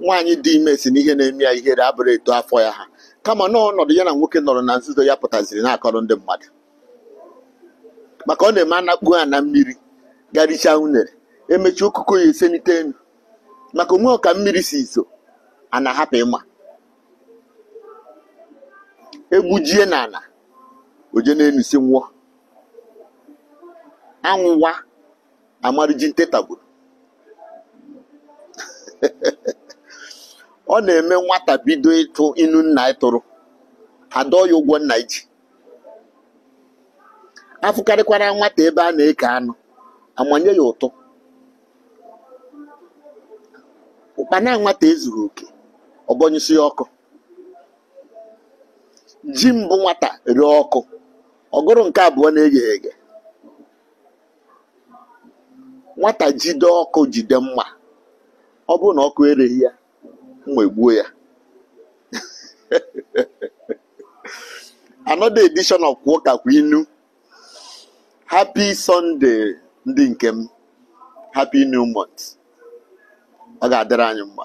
nwaanyị dị ime si ihe na-eme ya ihere abụrụ eto afọ ya ha kama n'ọnọdụ ya na nwoke nọrọ na nzuzo ya pụtaziri na-akọrọ ndị mmadụ maka ọ na-eme anakpu ha na mmiri garicha unere emechi okụkọ ya esenite enu maka onwe ọka mmiri si izo a na-ahapụ ịma egbujie n'ala oje na-enusi nwụọ anwụwa amariji ntetagburu ọ na-eme nwata bido ịtụ inu nna ị tụrụ adọ ya ụgwọ nna iji afụkarịkwara nwata ebe a na-eke anụ amanye ya ụtụ ụkpana nwata ezuru oke ọgọnyụsi ọkụ ji mbụ nwata rie ọkụ ọgụrụ nke abụọ na-eghe eghe nwata jide ọkụ jide mma ọ bụrụ na ọkụ ereghị ya Egbuo ya another edition of kwa inu happy sunday ndị nke m happy new month ọ ga-adịrị anyị mma